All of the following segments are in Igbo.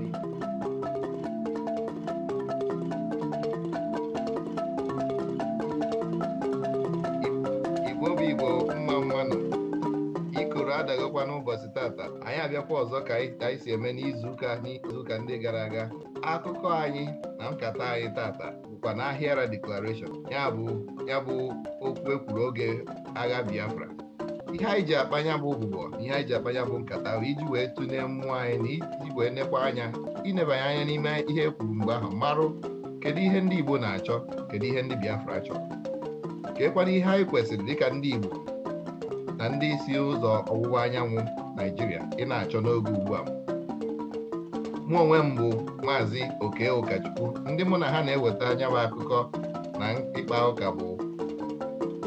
Gabi. Igbo bụ Igbo mma mmanụ ikoro adaghịkwa n'ụbọchị tata anyị abịakwa ọzọ ka anyị si eme n'izuụka n'izuụka ndị gara aga akụkọ anyị na nkata anyị tata bụkwa na ahịara deklarashọn ya bụ ya bụ okwu ekwuru oge agha Biafra ihe anyị ji akpanya bụ ụbụbọ ihe anyị ji akpanya bụ nkata ahụ iji wee tụnye mmụọ anyị na iji wee nekwa anya inebanye anya n'ime ihe e kwuru mgbe ahụ marụ kedu ihe ndị Igbo na-achọ kedu ihe ndị Biafra chọrọ ka ekwana ihe anyị kwesịrị dịka ndị Igbo na ndị isi ụzọ ọwụwa anyanwụ Naijiria ị na-achọ n'oge ugbu a mụ onwe m bụ maazị Oke Ụkachukwu ndị mụ na ha na-eweta anya bụ akụkọ na ịkpa ụka bụ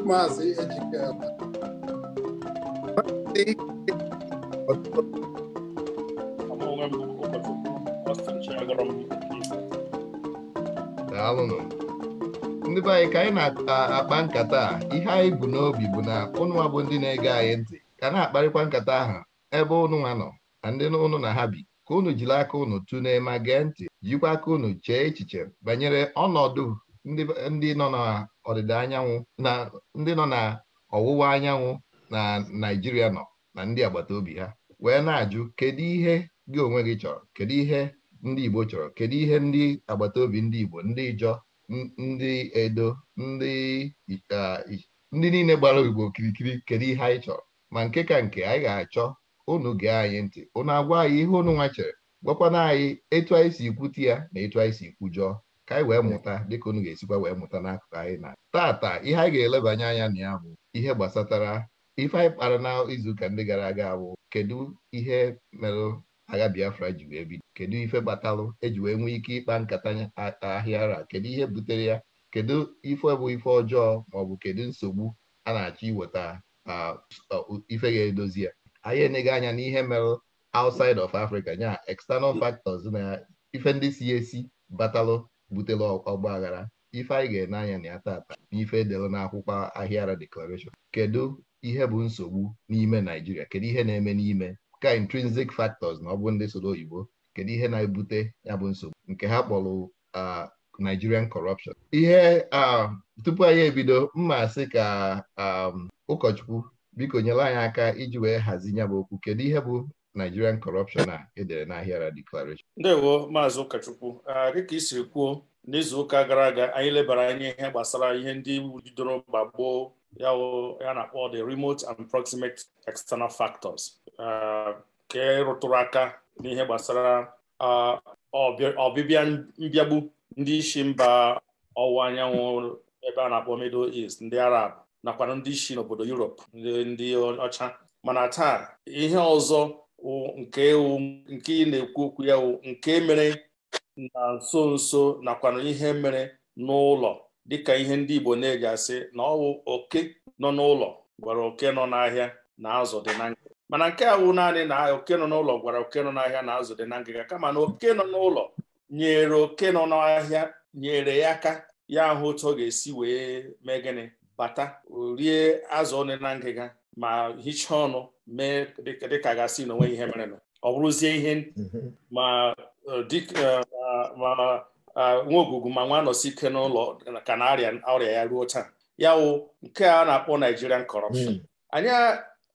maazị Ejike Sí. daalụnụ ndị be anyị ka anyị na-akpa nkata a ihe anyị bụ n'obi bụ na ụnụnwa bụ ndị na-ege anyị ntị ka na-akparịkwa nkata ahụ ebe ụnụnwa nọ na ndị ụnụ na ha bi ka unu jiri aka ụnụ tu n'ema gee ntị jikwa aka ụnụ chee echiche banyere ọnọdụ ndị nọ na ọdịda anyanwụ na ndị nọ na ọwụwa anyanwụ na naijiria nọ na ndị agbata obi ha wee na-ajụ kedu ihe gị onwe gị chọrọ kedu ihe ndị Igbo chọrọ kedu ihe ndị agbata obi ndị Igbo ndị Ijọ ndị Edo ndị ndị niile gbara Igbo okirikiri kedu ihe anyị chọrọ ma nke ka nke anyị ga-achọ unu gee anyị ntị unu agwa anyị ihe unu nwa chere gwakwana anyị etu anyị si ikwute ya na etu anyị si ikwujọọ ka anyị wee mụta dịka unu ga-esikwa wee mụta n'akụkụ anyị na tata ihe anyị ga-elebanye anya na ya bụ ihe gbasatara ife anyị kpara na izuụka ndị gara aga bụ kedu ihe merụ agha Biafra ji wee bido kedu ife gbatalụ eji wee nwee ike ịkpa nkata ahịa ara kedu ihe butere ya kedu ife bụ ife ọjọọ maọbụ kedu nsogbu a na-achọ iweta ife ga-edozi ya anyị eneghị anya n'ihe merụ outside of Africa nya external factors na ife ndị si esi batalụ butere ọgba aghara ife anyị ga-ene anya na ya tata n'ife edere n'akwụkwọ ahịa ara declaration kedu ihe bụ nsogbu n'ime Naijiria kedu ihe na-eme n'ime ka intrinsic factors na ọ bụ ndị soro oyibo kedu ihe na-ebute ya bụ nsogbu nke ha kpọrọ Nigerian corruption ihe tupu anyị ebido mma sị ka ụkọchukwu biko nyere anyị aka iji wee hazi ya bụ okwu kedu ihe bụ Nigerian corruption a edere n'ahịara declaration ndewo maazị ụkọchukwu dịka isi kwuo n'izu ụka gara aga anyị lebara anya ihe gbasara ihe ndị bidoro mgba gboo ya na-akpọ the remote and proximate external factors uh, ke rụtụrụ aka n'ihe gbasara ọbịbịa uh, mbịagbu ndị isi mba ọwụwa anyanwụ ebe a na-akpọ middle east ndị arab nakwa ndị isi n'obodo europe ndị ọcha mana taa ihe ọzọ nke ị na-ekwu okwu ya nke mere na nso nso nakwa ihe mere n'ụlọ dịka ihe ndị Igbo na-eji asị na ọwụ oke nọ n'ụlọ gwara oke nọ n'ahịa na azụ dị na ngịga mana nke a wụ naanị na oke nọ n'ụlọ gwara oke nọ n'ahịa na azụ dị na ngịga kama na oke nọ n'ụlọ nyere oke nọ n'ahịa nyere ya aka ya ahụ otu ọ ga-esi wee mee gịnị bata rie azụ ọnụ na ngịga ma hichaa ọnụ mee dịka gasị na onweghị ihe merenụ ọ bụrụzie ihe mhm. ma eh, eh, Ah, nwa ogwugwu ma nwa ike n'ụlọ ka na arịa ọrịa ya ruo taa ya wụ nke a na-akpọ Nigerian corruption hmm. anya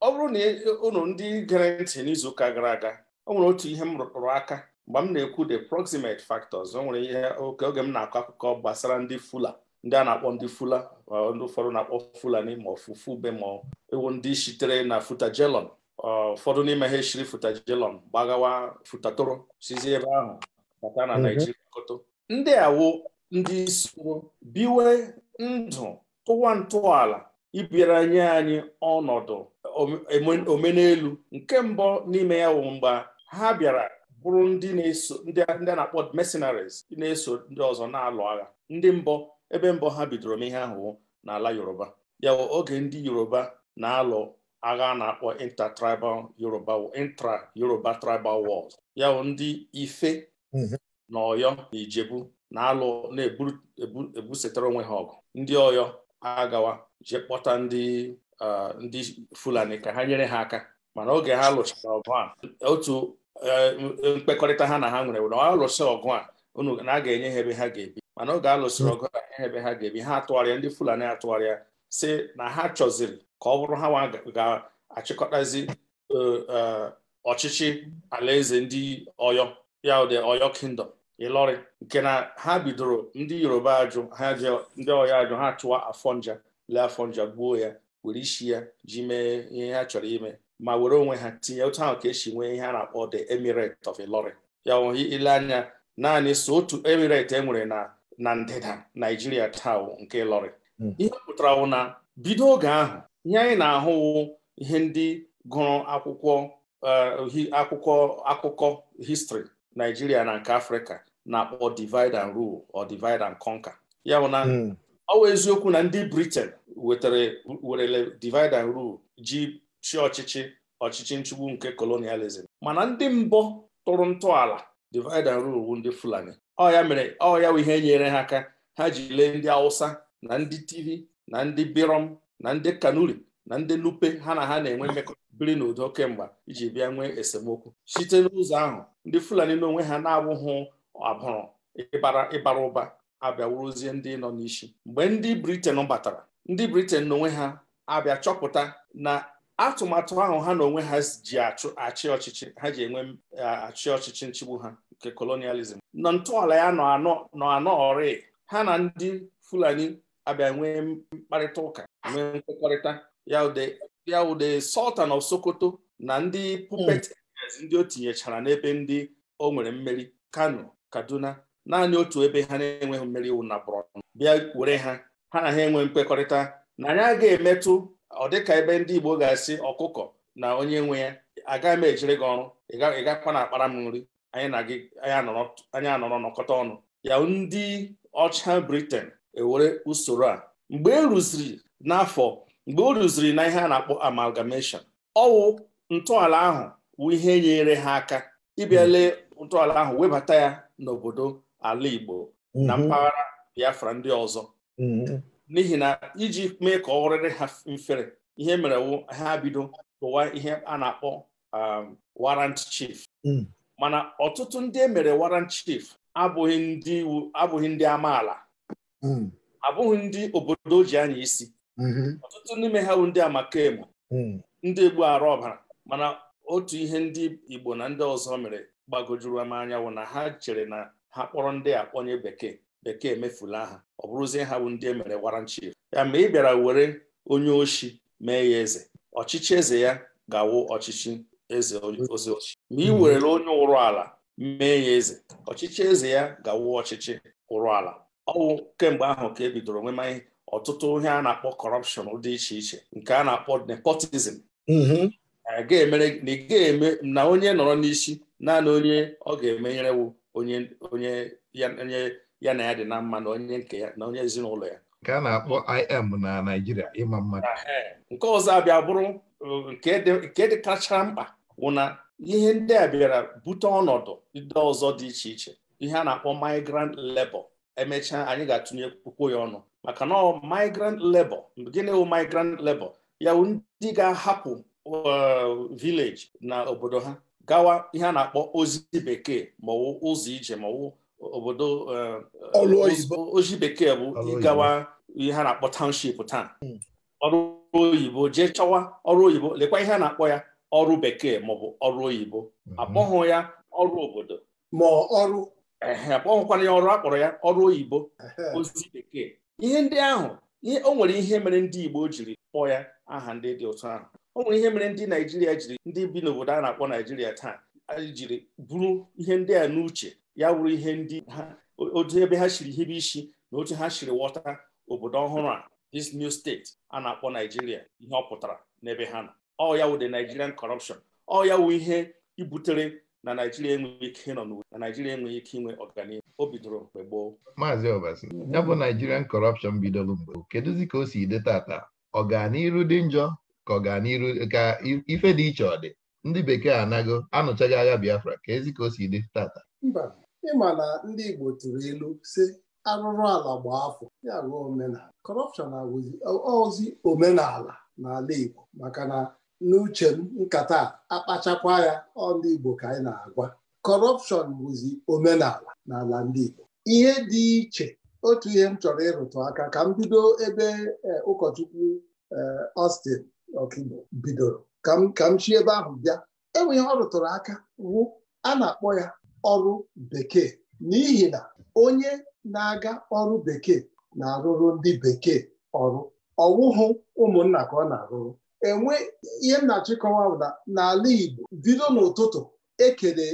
ọ bụrụ na ụlọ ndị gere ntị n'izuụka gara aga o nwere otu ihe m rụrụ aka mgbe m na-ekwu the proximate factors o nwere ihe oke oge m na-akọ akụkọ gbasara ndị fula ndị a na-akpọ ndị fula uh, ndị ụfọdụ na-akpọ fulani ma ọfụfụ be ma ewu ndị sitere na futajelon uh, ụfọdụ n'ime ha eshiri futajelon gbagawa futatoro sizi ebe ahụ bata na mhm. Naijiria koto ndị awụ ndị soro biwe ndụ tụwa ntọala ịbịara nye anyị ọnọdụ omenelu nke mbụ n'ime ya wụ mgbe ha bịara bụrụ ndị na-eso ndị a na-akpọ mercenaries na-eso ndị ọzọ na-alụ agha ndị mbọ ebe mbọ ha bidoro m ihe ahụ n'ala Yoruba ya bụ oge ndị Yoruba na-alụ agha na-akpọ intertribal Yoruba intra Yoruba tribal wars ya bụ ndị ife mhm. na ọyọ na ijebu na-alụ na-ebusetara onwe ha ọgụ ndị ọyọ agawa jee kpọta ndị uh, ndị fulani ka ha nyere ha aka mana oge ha lụchara ọgụ a otu uh, mkpekọrịta ha na ha nwere na alụsị ọgụ a unu na a ga-enye ha ebe ha ga-ebi mana oge alụsịrị ọgụ a enye ebe ha ga-ebi ha atụgharịa ndị fulani atụgharịa si na ha chọziri ka ọ bụrụ ha ga-achịkọtazi uh, ọchịchị alaeze ndị ọyọ ya ụdị ọyọ kingdom ịlọrị nke na ha bidoro ndị yoruba ajụ ha je ndị ọya ajụ ha chụwa afọnja lee afọnja gbuo ya were isi ya ji mee ihe ha chọrọ ime ma were onwe ha tinye otu ahụ ka esi nwee ihe a na-akpọ the emirate of Ilori. ya ohi ile anya naanị so otu emirate e nwere na na ndịda naijiria taa nke Ilọrị hmm. ihe pụtara wụ na bido oge ahụ ihe anyị na-ahụwu ihe ndị gụrụ akwụkwọ eh, akwụkwọ akụkọ histrị naijiria na nke afrịka na-akpọ divide and rule or divide and conquer ya bụ na hmm. ọ eziokwu na ndị Britain wetara werele divide and rule ji chi ọchịchị ọchịchị nchugbu nke colonialism mana ndị mbọ tụrụ ntọala divide and rule bụ ndị Fulani ọ ya mere ọ ya bụ ihe nyere ha aka ha ji lee ndị Hausa na ndị tivi na ndị Birom na ndị Kanuri na ndị Nupe ha na ha na-enwe mmekọbiri biri n'udo kemgbe iji bịa nwee esemokwu site n'ụzọ ahụ ndị Fulani n'onwe ha na-abụghị abụrụ ịbara ịbara ụba abịawuruzie ndị nọ n'isi mgbe ndị briten batara ndị briten n'onwe ha abịa chọpụta na atụmatụ ahụ ha na onwe ha ji achị ọchịchị ha ji enwe e, achị ọchịchị nchigbu ha nke kolonializm nọ ntọala ya nọ anọọrị ha na ndị fulani abịa nwee mkparịta ụka nwee nkwekọrịta ya ude sultan of sokoto na ndị pupet hmm. ndị o tinyechara n'ebe ndị o nwere mmeri kano kaduna naanị otu ebe ha na-enweghị mmeri iwu na bụrọnụ bịa were ha ha na ha enwe mkpekọrịta na anyị agaghị emetụ ọ dịka ebe ndị igbo ga-asị ọkụkọ na onye nwe ya agaghị m ejiri gị ọrụ ị na akpara m nri anyị anọrọ nọkọta ọnụ ya ndị ọcha briten ewere usoro a mgbe eruziri na n'afọ mgbe o na ihe a na-akpọ amalgamation ọwụ ntọala ahụ wụ ihe nyere ha aka ịbịale hmm. ntọala ahụ webata ya n'obodo ala Igbo na mhm. mpaghara Biafra ndị ọzọ mhm. n'ihi na iji mee ka ọ rịrị ha mfere ihe mere ha bido tụwa ihe a na-akpọ um, warrant chief mm. mana ọtụtụ ndị e mere warrant chief abụghị ndị iwu abụghị ndị amaala mm. abụghị ndị obodo ji anya isi mhm. ọtụtụ n'ime ha bụ ndị amakemu mm. ndị egbu arụ ọbara mana otu ihe ndị Igbo na ndị ọzọ mere gbagojuru m anyanwụ na ha chere na ha kpọrọ ndị akpọnye bekee bekee emefula ha ọ bụrụzie ha bụ ndị e mere warrant chief ya ma ị bịara were onye ochi mee ya eze ọchịchị eze ya ga-awụ ọchịchị eze ozi ochi ma ị mm-hmm. werela onye ụrụ ala mee ya eze ọchịchị eze ya ga-awụ ọchịchị ụrụ ala ọwụ kemgbe ahụ ka e bidoro nwema ọtụtụ ihe a na-akpọ kọrọpshọn dị iche iche nke a na-akpọ nepotizm mm-hmm. na ị ga-eme na onye nọrọ n'isi naanị onye ọ ga-emenyere wụ onye ya na ya dị na mma na onye nke ya na onye ezinụlọ ya nke a na-akpọ im na Naịjirịa ịma mmadụ nke ọzọ abịa bụrụ nke dị kacha mkpa wụ na ihe ndị a bịara bute ọnọdụ ndị ọzọ dị iche iche ihe a na-akpọ migrant lebo emechaa anyị ga-atụnye kwukwo ya ọnụ maka na migrant labor gịnị wụ migrant labor ya ndị ga-ahapụ village na obodo ha gawa ihe a na-akpọ ozi bekee ma ụzọ ije ma obodo eh, eh, ozi bekee bụ ịgawa ihe a na-akpọ township taa hmm. ọrụ oyibo jee chọwa ọrụ oyibo lekwa ihe a na-akpọ ya ọrụ bekee maọbụ ọrụ oyibo hmm. akpọghụ ya ọrụ obodo ma ọrụ akpọghụkwana ya ọrụ akpọrọ ya ọrụ oyibo ozi bekee ihe ndị ahụ o nwere ihe mere ndị Igbo jiri kpọọ ya aha ndị dị ụtọ ahụ o nwere ihe mere ndị naijiria jiri ndị bi n'obodo a na-akpọ naijiria taa jiri bụrụ ihe ndị a n'uche ya wụrụ ihe ndị ha otu ebe ha shiri hibe isi na otu ha shiri wọta obodo ọhụrụ a dis new steeti a na-akpọ naijiria ihe ọ pụtara n'ebe ha nọ ọ ya wụ the nigerian corruption ọ ya wụ ihe ibutere na naijiria enweghị ike nọ n'uwe na naijiria enweghị ike inwe ọganihu o bidoro mgbe gboo maazị ọbasi ya bụ nigerian corruption bidoro mgbe kedụzi ka o si dị tata ọganiru dị njọ ka ọ gaa n'iru ka ife dị iche ọ dị ndị bekee anago anụchaghị agha Biafra ka ezi ka o si dị tata mba ịma na ndị Igbo tụrụ ilu si arụrụ ala gbaa afọ ya bụ omenala kọrọpshọn ozi omenala n'ala Igbo maka na n'uche m nkata akpachakwa ya ọ ndị Igbo ka anyị na-agwa kọrọpshọn bụzi omenala n'ala ndị Igbo ihe dị iche otu ihe m chọrọ ịrụtụ aka ka m bido ebe eh, ụkọchukwu eh, Austin ọkaigbo bidoro ka m chi ebe ahụ bịa enwe ihe ọ rụtụrụ aka wụ a na-akpọ ya ọrụ bekee n'ihi na onye na-aga ọrụ bekee na-arụrụ ndị bekee ọrụ ọwụhụ ụmụnna ka ọ na-arụrụ enwe ihe m na-achịkọwa n'ala Igbo bido n'ụtụtụ e, e,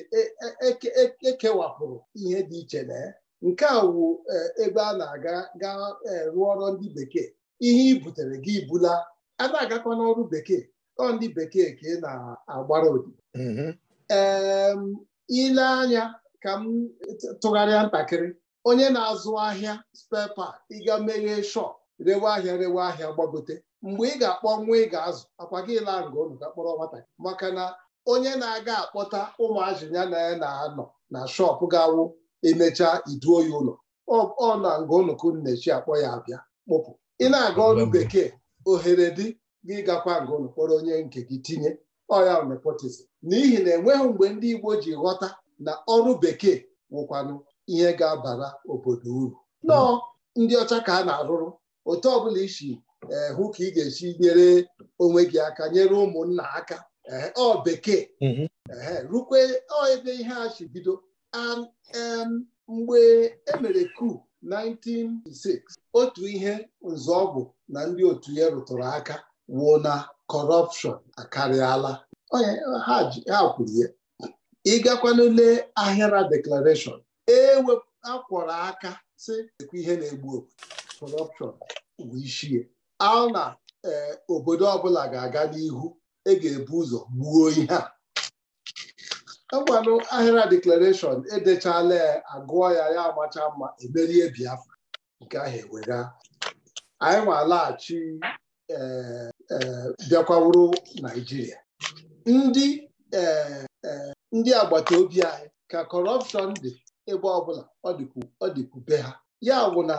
e, ekewapụrụ ihe dị iche na ya nke a wụ ebe a na-aga ga rụọ ọrụ ndị bekee ihe i butere gị bula a na-agakwa n'ọrụ bekee ọ ndị bekee ka ị na-agbara odi mm-hmm. ee ile anya ka m tụgharịa ntakịrị onye na-azụ ahịa spepa ịga meghee shọp rewe ahịa rewe ahịa gbagote mgbe ị ga-akpọ nwa ị ga-azụ akwa gị laa nga unu ga kpọrọ nwata maka na onye na-aga akpọta ya na ya na-anọ na shọpụ ga-awụ emechaa iduo ya ụlọ ọ na nga unu ka Nnechi na akpọ ya abịa kpụpụ ị na-aga ọrụ bekee ohere dị gị gakwa ngụnụ onye nke gị tinye ọya nepotizm n'ihi na enweghị mgbe ndị Igbo ji ghọta na ọrụ bekee nwụkwanụ ihe ga-abara obodo uru nọọ ndị ọcha ka a na-arụrụ otu ọbụla isi eh, hụ ka ị ga-esi nyere onwe gị aka nyere ụmụnna aka eh, ọ bekee mhm. eh, rukwe ebe ihe a si bido mgbe emere kuu 1906 otu ihe nzọọgwụ na ndị otu ya rụtụrụ aka wuo na kọrọpshọn akarịala ha kwuru ya ịgakwanule ahịara deklarashọn e akwọrọ aka sị ekwe ihe na-egbu okwu, kọrọpshọn bụ ichie a na eh, obodo ọbụla ga-aga n'ihu e ga-ebu ụzọ gbuo ihe a egwanụ ahịra deklarashọn edechala ya agụọ ya ya amacha mma emerie biafra nke ahụ ewega anyị nwalaghachi eh, eh, bịakwawuru naijiria ndị eh, ndị agbata obi anyị ka kọrọpshọn dị ebe ọbụla ọ dịkwube ha ya bụ na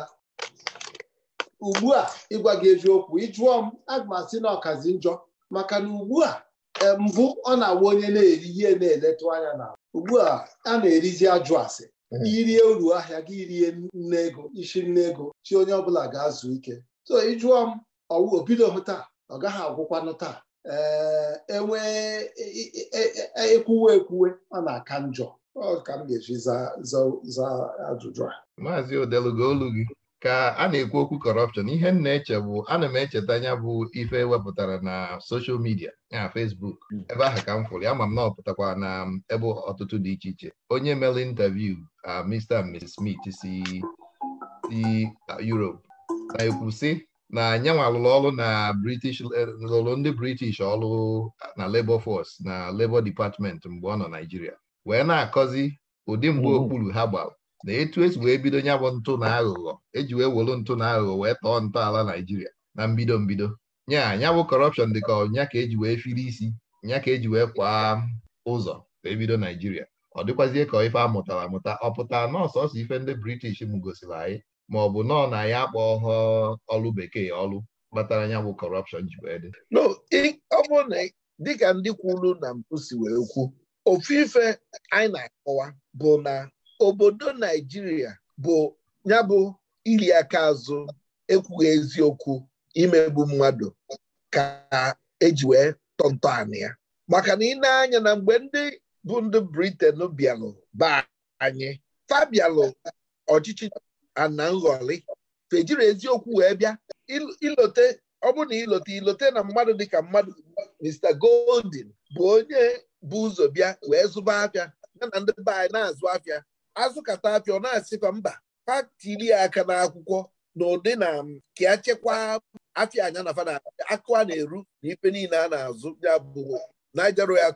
ugbu a ịgwa gị eziokwu ịjụọ m aga na ọkazi njọ maka na ugbu a mbụ ọ na-awa onye na-eri ihe na-eletụ anya na ugbu a a na-erizi ajụ asị hmm. irie uru ahịa gị rie nne ego isi nne ego chi onye ọbụla ga-azụ ike so ịjụọ m obidohụ taa ọ gaghị agwụkwanụ taa ee enwe ekwuwe e, e, e, ekwuwe ọ na-aka njọ ọ ka m ga-eji zaa ajụjụ a maazị gị ka a na-ekwu okwu kọrọpshọn ihe m na-eche bụ ana m echeta anya bụ ife wepụtara na soshal midia na fesbuk hmm. ebe ahụ ka m fụrụ amam m na ọpụtakwa na ebe ọtụtụ dị iche iche onye mere interview a Mr and Smith si urop. na-ekwu sị na anyanwa lụrụ ọrụ na British e, lụrụ ndị British ọrụ na Labour Force na Labour Department mgbe ọ nọ Naijiria wee na-akọzi ụdị mgbe okpuru ha gbara na etu esi wee bido nya bụ ntụ na aghụghọ eji wee wolu ntụ na aghụghọ wee tọọ ntọala Naijiria na mbido mbido nya nya bụ kọrọpshọn dị ka nya ka eji wee firi isi nya ka eji wee kwa ụzọ wee bido Naijiria ọ dịkwazie ka ife amụtara amụta ọ pụta nọọsọsọ ife ndị British m gosiri anyị ma ọ bụ nọọ na ya akpọ ọlụ bekee ọlụ kpatara nya bụ kọrọpshọn ji wee dị no ọ bụ na dịka ndị kwuru na mpụ si wee kwu ofu ife anyị na-akọwa bụ na obodo naijiria bụ ya bụ iri aka azụ ekwughị eziokwu imegbu mmadụ ka eji wee tọntọ anị ya maka na ị na-anya na mgbe ndị bụ ndị briten bịalụ ba anyị fabialụ ọchịchị ana fejiri eziokwu wee bịa ilote ọ na ilote ilote na mmadụ dịka mmadụ Mr. Goldin bụ onye bụ ụzọ bịa wee zụba afịa ya na ndị be na-azụ afịa azụkata apịa ọ na-asịkwa mba patili aka n'akwụkwọ na ụdị na ka ya chekwaa afịa anya na fana akụ a na-eru na ife niile a na-azụ ya bụ Niger Royal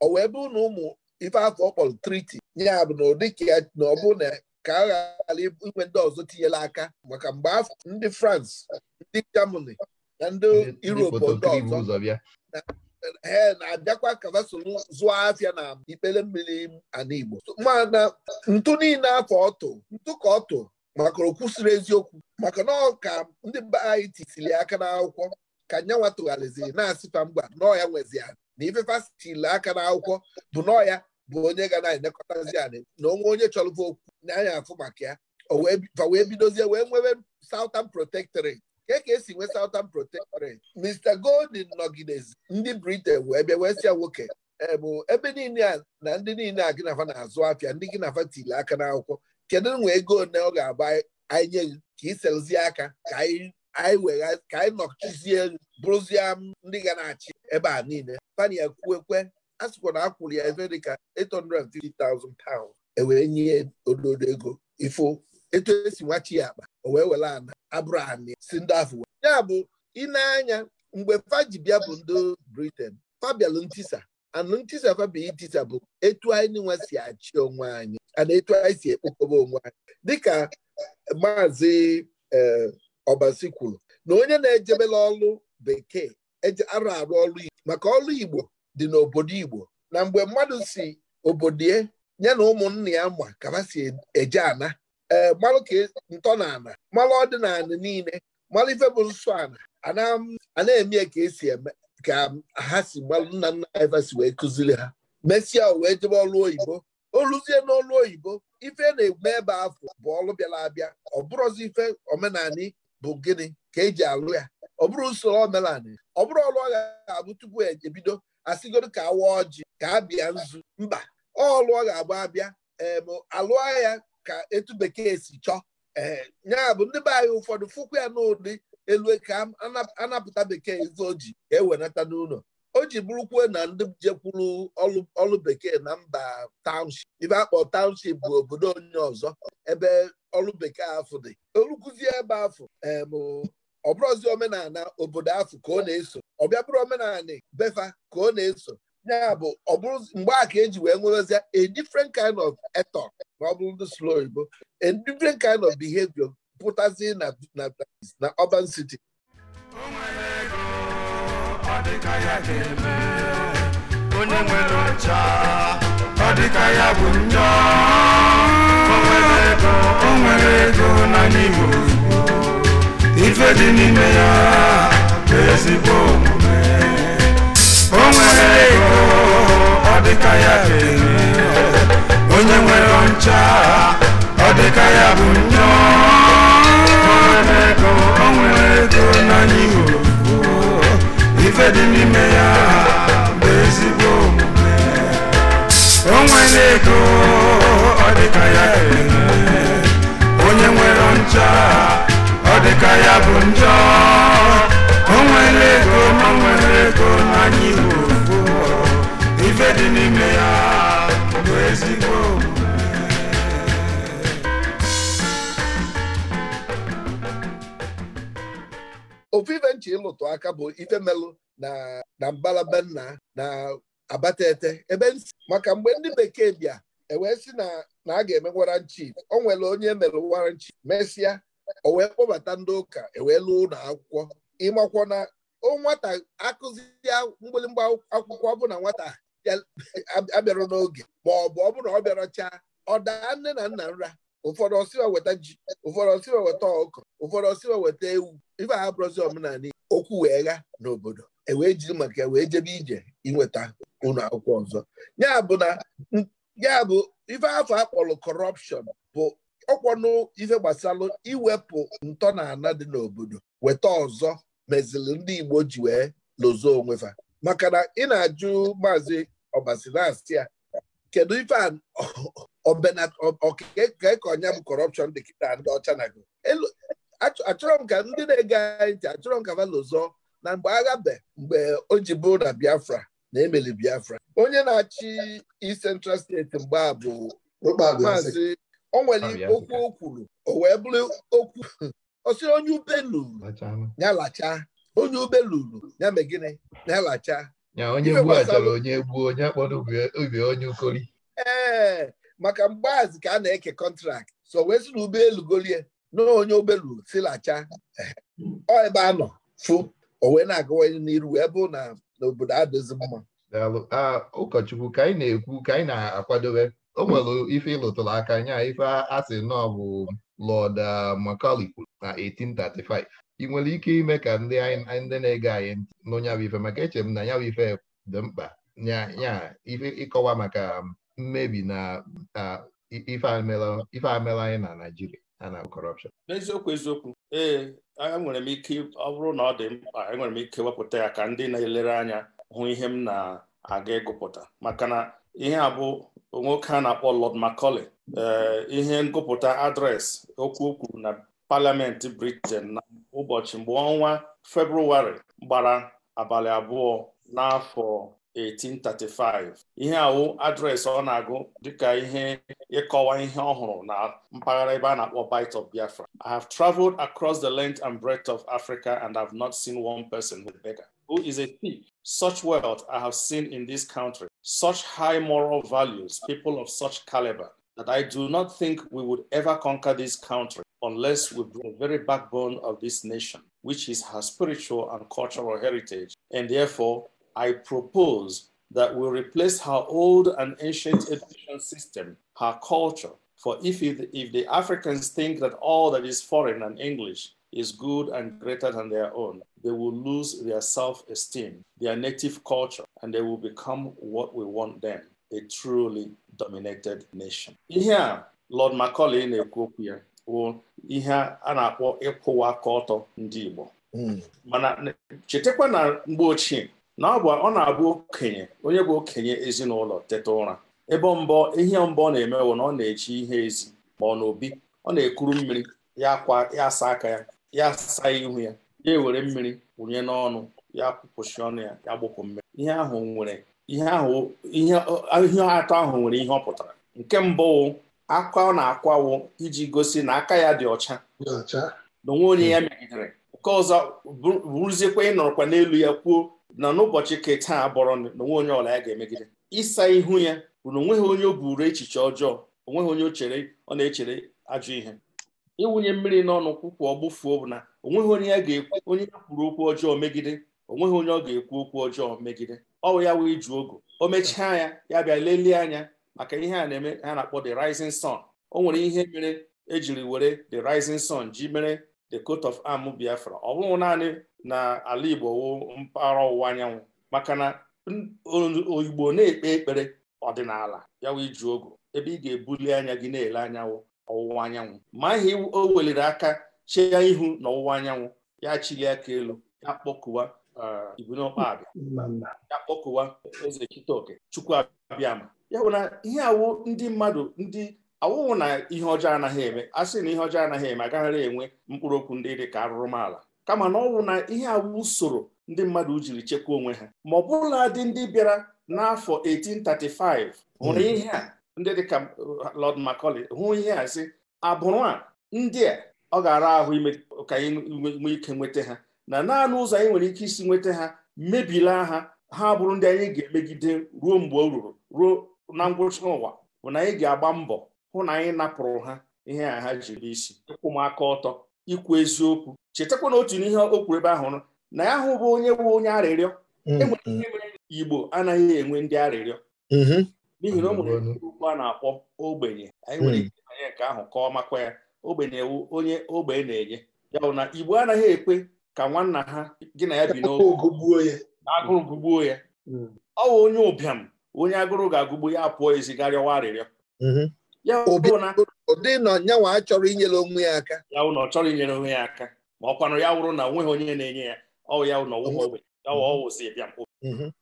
ọ wee bụ na ụmụ ife afọ ọ triti ya bụ na ụdị ka na ọ na ka a ghara inwe ndị ọzọ tinyela aka maka mgbe afọ ndị frans ndị Germany na ndị Europe ndị ọzọ ee na-abịakwa ka ha soro zụọ afịa na ikpele mmiri ana Igbo mana ntụ niile afọ ọtụ ntụ ka ọtụ maka okwusiri eziokwu maka na ọka ndị mba anyị tisiri aka n'akwụkwọ ka nyanwa tụgharịziri na-asịfa mgba nọọ ya nwezi ya na ifefasitili aka n'akwụkwọ bụ nọọ ya bụ onye ga na-elekọtazi anyị na onwe onye chọrọ okwu na anya afụ maka ya wee bidozie wee nwebe Southern Protectorate ka ka esi nwee Southern Protectorate Mr. Golden nọgidezi ndị Britain wee bịa wee nwoke eh, bụ ebe niile a na ndị niile a gịnafa na-azụ afịa ndị gịnafa tili aka n'akwụkwọ kedu nwe ego ole ọ ga-agba anyị nye ka iselzie aka ka anyị ka nọchizie bụrụzie ndị ga na-achị ebe a niile pania kwuekwe a sịkwa na akwụrụ ya ebe dịka 850,000 pounds ewere nye ododo ego ifo etu esi nwachi ya akpa o wee were ana abraham si ndị afọ ya bụ ịna-anya mgbe faji bịa bụ ndị briten fabialụ ntisa anụ ntisa fabia itisa bụ etu anyị nwa si achị onwe anyị ana etu anyị si ekpokọba onwe anyị dịka maazị ọbasi eh, kwuru na onye na-ejebela ọlụ bekee arụ arụ ọlụ igbo maka ọlụ igbo dị n'obodo igbo na mgbe mmadụ si obodo ya na ụmụnna ya ma ka ha si eje ana ee malụ ka e, ntọnala malụ ọdịnala niile malụ ife bụ nsọ ala a na-eme ka esi eme ka ha si gbalụ nna nna anyị si wee kụziri ha mesịa wee jebe ọlụ oyibo oluzie n'ọlụ oyibo ife e na-eme ebe afọ bụ ọlụ bịara abịa ọ bụrụzi ife omenani bụ gịnị ka eji alụ ya ọ bụrụ usoro omenani ọ bụrụ ọlụ ọ ga-abụ tupu ebido asịgodo ka awa ọjị ka abịa nzu mba ọlụ ọ ga-abụ abịa ee alụ ka etu bekee si chọọ ee eh, ya bụ ndị be anyị ụfọdụ fụkwa ya n'ụdị elu ka anapụta bekee ife o ji ka e n'ụlọ o ji na ndị jekwuru ọlụ bekee na mba township ibe akpọ township bụ obodo onye ọzọ ebe ọlụ bekee afụ dị olukuzie ebe afụ bụ ọbụrụzi omenala obodo afụ ka ọ na-eso ọbịa bụrụ omenala befa ka ọ na-eso ya bụ ọ bụrụ mgbe a ka eji wee nwerezie a different kind of eto ma ọ bụrụ ndị slow igbo a different kind of behavior pụtazi na na urban city onye nwere ọcha ọ dịka ya bụ njọ o nwere ego na n'ime ife dị n'ime ya bụ ezigbo omume o nwere ego dịka ya onye nwere ọncha ọ dịka ya bụ nnọọ o nwere ego n'anya ife dị n'ime ya bụ ezigbo omume o nwere ego ọ dịka ya onye nwere ọncha ọ dịka ya bụ njọ o nwere ego ma nwere ego n'anya iwu dị n'ime ya bụ ezigbo ofu ife nchi ịlụtụ aka bụ ife melụ na mbalaba nna na ete ebe nsi maka mgbe ndị bekee bịa ewee si na a ga-eme warrant o nwere onye emere warrant chief mesịa o wee kpọbata ndị ụka ewee lụọ ụlọ akwụkwọ ịmakwọ na o nwata akụzi mgbịlịmgba akwụkwọ bụ na nwata abịara n'oge ma ọ bụ ọ bụrụ na ọ bịara chaa ọ daa nne na nna nra ụfọdụ ọsịwa weta ji ụfọdụ ọsịwa weta ọkụ ụfọdụ ọsịwa weta ewu ife abụrụzi omenala okwu wee gha n'obodo ewee jiri maka ya wee jebe ije inweta ụlọ akwụkwọ ọzọ ya bụ ife afọ akpọrọ kọrọpshọn bụ ọkwọnụ ife gbasalụ iwepụ ntọ na ana dị n'obodo weta ọzọ meziri ndị Igbo ji wee lozo onwefa maka na ị na-ajụ maazị ọbasilasị ya kedu ife ọbeka ka ọnya bụ kọrọpshọn dị kịta ndị ọcha na Elu achọrọ m ka ndị na-ege anyị ntị achọrọ m ka valozọ na mgbe agha be mgbe o ji bụrụ na biafra na emeli biafra onye na-achị East Central steeti mgbe a bụ maazị o nwere okwu o kwuru o wee bụrụ okwu ọ sịrị onye ube luru ya lacha onye ube luru ya megịnị ya lacha nya onye gbuo achọrọ onye gbuo onye akpọrọ obi onye ukori ee maka mgbaz ka a na-eke kọntrakt so wee sị na ụgbọelu golie na onye obelu silacha ọ ebe a nọ fụ o wee na-agawanye n'iru wee bụ na n'obodo adịzi mma ụkọchukwu ka anyị na-ekwu ka anyị na-akwadobe o nwere ife ịlụtụrụ aka nya ife a asị nọ bụ Lord uh, Macaulay kwuru na 1835 ị nwere ike ime ka ndị ndị na-ege anyị ntị nụ ife maka eche m na nyawa ife dị mkpa ya ife ịkọwa maka um, mmebi na ife amela anyị na Naịjirịa na kọrọpshọn n'eziokwu eziokwu ee enwere m ike ọ bụrụ na ọ dị mkpa enwere m ike wepụta ya ka ndị na-elere anya hụ ihe m na-aga ịgụpụta maka na ihe a bụ nwoke a na-akpọ Lord Macaulay ee eh, ihe ngụpụta adreesị okwu okwu na Parliament Britain na ụbọchị mgbe ọnwa February gbara abalị abụọ n'afọ 1835 ihe awụ adreesị ọ na-agụ dịka ihe ịkọwa ihe ọhụrụ na mpaghara ebe a na-akpọ Bight of Biafra I have traveled across the length and breadth of Africa and have not seen one person with beggar who is a thief such wealth I have seen in this country such high moral values people of such caliber that I do not think we would ever conquer this country unless we bring the very backbone of this nation, which is her spiritual and cultural heritage. And therefore, I propose that we replace her old and ancient education system, her culture. For if, it, if the Africans think that all that is foreign and English is good and greater than their own, they will lose their self esteem, their native culture, and they will become what we want them a truly dominated nation. ihe a Lord Macaulay na-ekwu okwu ya bụ ihe a na-akpọ ịkwụwa aka ọtọ ndị Igbo hmm. mana chetakwa na mgbe ochie na ọ bụ ọ na-abụ okenye onye bụ okenye ezinụlọ teta ụra ebe mbọ ihe mbọ ọ na-eme na ọ na-eji ihe ezi ma ọ na obi ọ na-ekuru mmiri ya akwa ya asa aka ya ya saa ihu ya ya ewere mmiri wụnye n'ọnụ ya kwụpụchi ọnụ ya ya gbụpụ mmiri ihe ahụ nwere ihe ahụ ihe atọ ahụ nwere ihe ọ pụtara nke mbụ akwa ọ na-akwawo iji gosi na aka ya dị ọcha na onwe onye ya hmm. megidere nke ọzọ bụrụziekwa ịnọrọkwa n'elu ya kwuo na n'ụbọchị ka taa bọrọ na onwe onye ọla ya ga-emegide ịsa ihu ya bụ na onweghị onye o buru echiche ọjọọ onweghị onye chere ọ na-echere ajọ ihe ịwụnye mmiri n'ọnụ kwụkwụ ọgbụfuo bụ na onweghị onye ya ga-ekwu onye ya kwuru okwu ọjọọ megide onweghị onye ọ ga-ekwu okwu ọjọọ megide ọwụ ya wee ju ogo o mechaa ya ya bịa lelie anya maka ihe a na-eme ha na-akpọ the rising sun o nwere ihe mere ejiri were the rising sun ji mere the coat of arm biafra ọ bụghị naanị na ala igbo wụ mpaghara ọwụwa anyanwụ maka na oyigbo na-ekpe ekpere ọdịnala ya wee ju ogo ebe ị ga-ebuli anya gị na-ele anyanwụ ọwụwa anyanwụ ma ihe o weliri aka chee ya ihu na ọwụwa anyanwụ ya chili aka elu ya kpọkuwa Eh, Ibunu Ọkpabia ya kpọkụwa eze Chitoke Chukwuabiama ya bụ na ihe awụ ndị mmadụ ndị awụwụ na ihe ọjọọ anaghị eme a sị na ihe ọjọọ anaghị eme agaghara enwe mkpụrụ okwu ndị dị ka arụrụmala kama na ọwụ na ihe awụ usoro ndị mmadụ jiri chekwaa onwe ha ma ọ bụla dị ndị bịara n'afọ 1835 hụrụ hmm. ihe a ndị dịka uh, Lọd Macaulay hụ ihe a sị abụrụ a ndị a ọ ga-ara ahụ ime ka anyị nwee ike nweta ha na naanị ụzọ anyị nwere ike isi nweta ha mebila ha ha bụrụ ndị anyị ga-emegide ruo mgbe o ruru ruo na ngwụcha ụwa bụ na anyị ga-agba mbọ hụ na anyị napụrụ ha ihe a ha jiri n'isi ịkwụ m aka ọtọ ikwu eziokwu chetakwa na otu n'ihe o kwuru ebe ahụ na ya hụ bụ onye bụ onye arịrịọ mm-hmm. enwere ihe mere igbo anaghị enwe ndị arịrịọ mm-hmm. n'ihi na o nwere okwu a na-akpọ ogbenye anyị nwere mm. ike anye nke ahụ ka ọ makwa ya ogbenye onye ogbe na-enye ya bụ na igbo anaghị ekwe ka nwanna ha gị na ya bi n'oge agụrụ gụgbuo ya hmm. ọ bụ onye ụbịam onye agụrụ ga-agụgbu ya pụọ ezigharịwa arịrịọ mm-hmm. ya ụdị na nyanwa achọrọ inyere onwe ya aka ya chọrọ inyere onwe ya aka ma ọ kwanụ ya wụrụ na onweghị onye na-enye ya ọ ya ụnọ mm-hmm.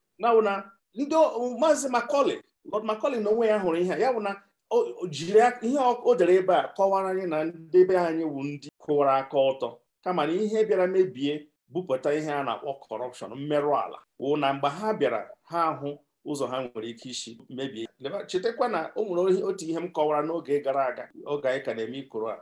na ndị maazị Macaulay Lord Macaulay na onwe ya hụrụ ihe a ya bụ na o jiri ihe o dere ebe a kọwara anyị na ndị be anyị wụ ndị kụwara aka ọtọ kama na ihe bịara mebie bupụta ihe a na-akpọ kọrọpshọn mmerụ ala wụ na mgbe ha bịara ha ahụ ụzọ ha nwere ike isi mebie chetakwa na o nwere otu ihe m kọwara n'oge gara aga oge anyị ka na-eme ikoro a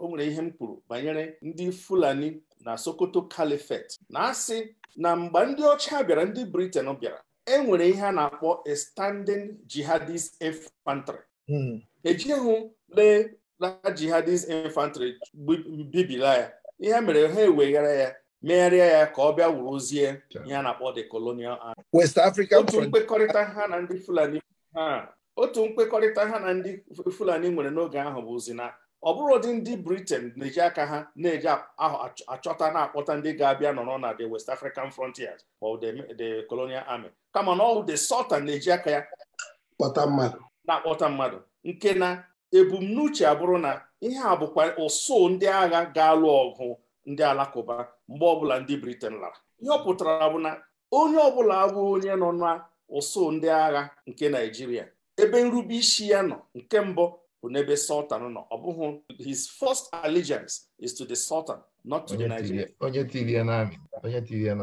o nwere ihe m kwuru banyere ndị Fulani na Sokoto Caliphate na-asị na mgbe ndị ọcha bịara ndị Britain bịara e nwere ihe a na-akpọ a standing jihadist infantry ejighị lee na jihadist infantry bibila ya ihe e mere ha eweghara ya megharịa ya ka ọ bịa wuruzie ihe a na-akpọ the colonial army otu mkpekọrịta ha na ndị Fulani ha otu mkpekọrịta ha na ndị Fulani nwere n'oge ahụ bụ bụzi na ọ bụrụ ụdị ndị Britain na-eji aka ha na-eji achọta na-akpọta ndị ga-abịa nọrọ na the West African frontiers or the colonial army kama na ọ the Sultan na-eji aka ya na-akpọta mmadụ nke na ebumnuche abụrụ na ihe a bụkwa ụsụ ndị agha ga-alụ ọgụ ndị alakụba mgbe ọbụla ndị briten lara ihe ọ pụtara bụ na onye ọbụla bụ onye nọ na ụsụ ndị agha nke naijiria ebe nrube isi ya nọ nke mbụ bụ n'ebe Sultan nọ ọ bụghị his first allegiance is to the Sultan not to the Nigerian onye tiri ya onye tiri ya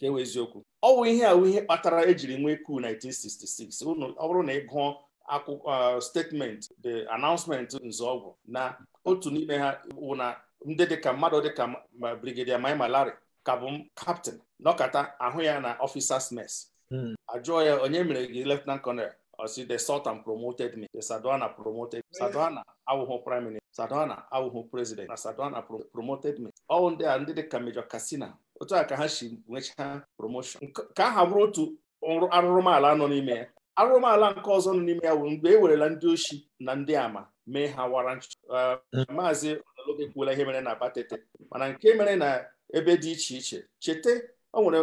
e eziokwu ọ bụ ihe a ihe kpatara ejiri nwee ku 1966 ọ bụrụ na ị gụọ akwụkwọ uh, statement the announcement nzọọgwụ na otu n'ime ha wụ na ndị dịka mmadụ dịka brigadier Mai Malari ka bụ kaptịn nọkata ahụ ya na officers mess hmm. ajụọ ya onye mere gị lieutenant colonel osi the sultan promoted me the Sadwana promoted Sadwana awụghụ prime minister Sadwana awụghụ president na Sadwana promoted me ọ ndị a ndị dịka major kasina. otu a ka ha si nwechaa promotion ka aha bụrụ otu arụrụmala nọ n'ime ya arụmala nke ọzọ nọ n'ime ya wụ mgbe e werela ndị oshi na ndị ama mee ha wara nchụcha uh, maazị ọnalogo ekwuola ihe mere na batete mana nke mere na ebe dị iche iche cheta o nwere